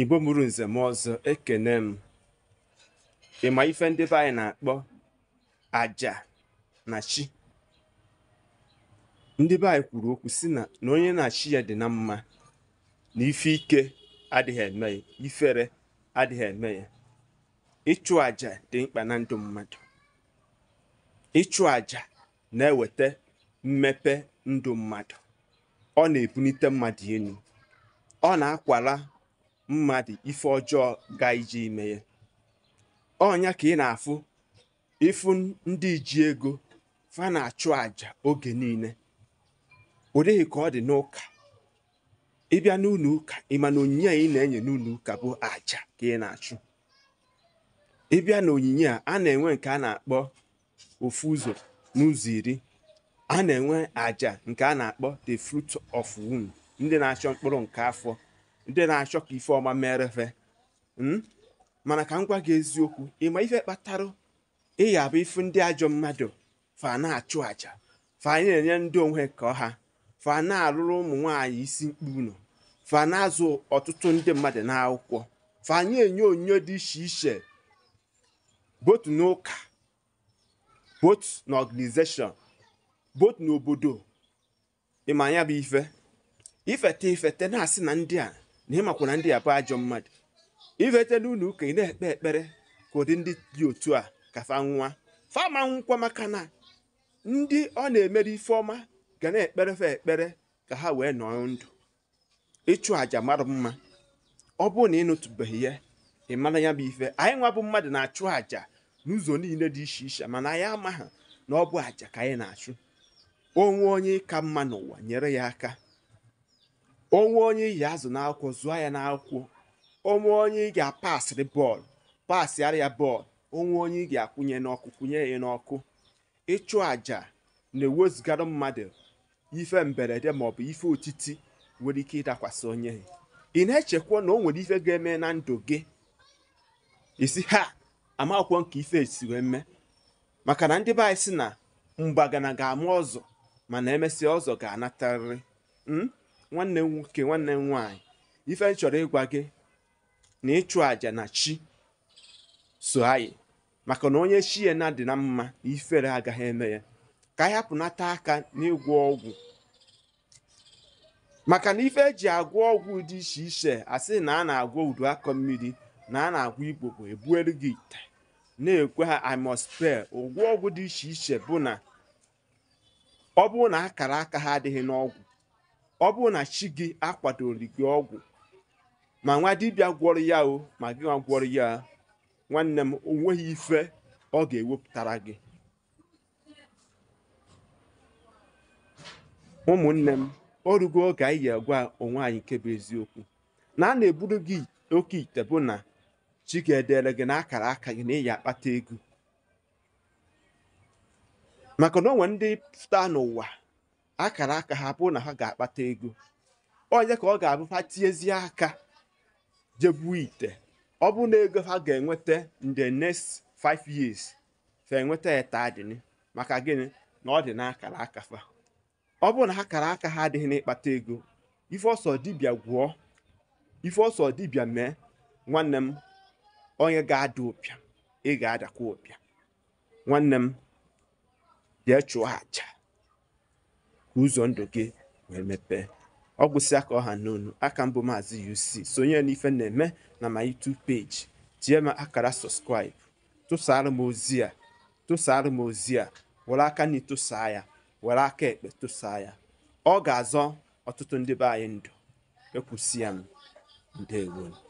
igbo mụrụ nze m ọzọ ekene m ịma ife ndị be anyị na-akpọ aja na chi ndị be anyị kwuru okwu si na onye na chi ya dị na mma na ife ike adịghị eme ya ifere adịghị eme ya ịchụ aja dị mkpa na ndụ mmadụ ịchụ aja na-eweta mmepe ndụ mmadụ ọ na-ebunite mmadụ elu ọ na-akwara mmadụ ife ọjọọ ga ije ime ya ọnya ka ị na-afụ ịfụ ndị ji ego fa na-achụ àjà oge niile ọ ka ọ dị n'ụka ịbịa n'ụlọ ụka ịma na onyinye a ị na-enye n'ụlọ ụka bụ àjà ka ị na-achụ ịbịa na onyinye a a na-enwe nke a na-akpọ ofu ụzọ n'ụzọ iri a na-enwe àjà nke a na-akpọ the fruit of womb ndị na-achọ mkpụrụ nke afọ ndị na-achọ ka ife ọma mere fe hmm? mana ka m gwa gị eziokwu ịma ife kpatara ịya abụ ife ndị ajọ mmadụ fa na-achụ aja fa anyị na-enye ndị onwe ka ọha fa na-alụrụ ụmụ nwaanyị isi mkpu nọ fa na-azụ ọtụtụ ndị mmadụ n'akwụkwọ fa anyị enye onyinyo dị iche iche botu n'ụka botu na ọganizeshọn botu n'obodo ịma ya bụ ife ifete ifete na-asị na ndị a na ịmakwa ndị a bụ ajọ mmadụ ivete n'ụlọ ụka ị na-ekpe ekpere ka ụdị ndị dị otu a ka fa nwa fama nwụkwa maka na ndị ọ na-emere ife ọma ga na-ekpere fa ekpere ka ha wee nọọ ndụ ịchụ àjà mara mma ọ bụrụ na ị nụtụbeghị ya ị mara ya bụ ife anyị nwa bụ mmadụ na-achụ àjà n'ụzọ niile dị iche iche mana anyị amaghị na ọ bụ àjà ka anyị na-achụ onwe onye ka mma n'ụwa nyere ya aka onwe onye iyi azụ n'akwụkwọ zụọ ya n'akwụkwọ onwe onye ị ga-apasịrị bọọlụ pasịara ya bọọlụ onwe onye ị ga-akwụnye n'ọkụ kwụnye ya n'ọkụ ịchụ àjà na-ewezugara mmadụ ife mberede maọbụ ife otiti nwere ike ịdakwasị onye ị na-echekwa na o nwere ife ga-eme na ndụ gị isi ha amakwụkwọ nke ife esi wee mee maka na ndị be anyị si na mgbagana ga-ama ọzọ mana emesịa ọzọ ga-anatarịrị hmm? nwanne m nwoke nwanne m nwaanyị ife chọrọ ịgwa gị na ịchụ àjà na chi so anyị maka na onye chi ya na dị na mma na ifere agaghị eme ya ka anyị hapụnata aka n'ịgwọ ọgwụ maka na ife eji agwọ ọgwụ dị iche iche asị na a na-agwọ udu akọ mmiri na a na-agwọ igbo bụ ebuelu gị ite na-ekwe ha amospel ụgwọ ọgwụ dị iche iche bụ na ọ bụrụ na akara aka ha adịghị n'ọgwụ ọ bụrụ na chi gị akwadori gị ọgwụ ma nwa dibịa gwọrọ ya o ma gị nwa gwọrọ ya nwanne m onweghị ife ọ ga-ewepụtara gị ụmụnne m o rugo oge anyị yi gwa onwe anyị nke bụ eziokwu na a na-eburu gị oke ite bụ na chi ga-edere gị na akara aka gị na ịyi akpata ego maka na o ndị pụta n'ụwa akara aka ha bụrụ na ha ga-akpata ego onye ka ọ ga-abụ ha tiezie aka jebu ite ọ na ego ha ga-enweta the next five years fa enweta etadini maka gịnị na ọ dị n'akara aka fa ọ bụrụ na ha kara aka ha adịghị n'ịkpata ego ife ọsọ dibịa gwụọ ife ọsọ dibịa mee nwanne m onye ga-ada ụpịa ị ga-adakwa ụpịa nwanne m bịa chụọ aja ka ụzọ ndụ gị wee mepee ọ gwụsị aka ọha na aka mbụ maazị UC sonye n'ife na-eme na ma YouTube page tie m akara subscribe tụsara m ozi a tụsara m ozi a were aka na ịtụsaa ya were aka ekpe tụsaa ya ọ ga-azọ ọtụtụ ndị be anyị ndụ ekwusi ya m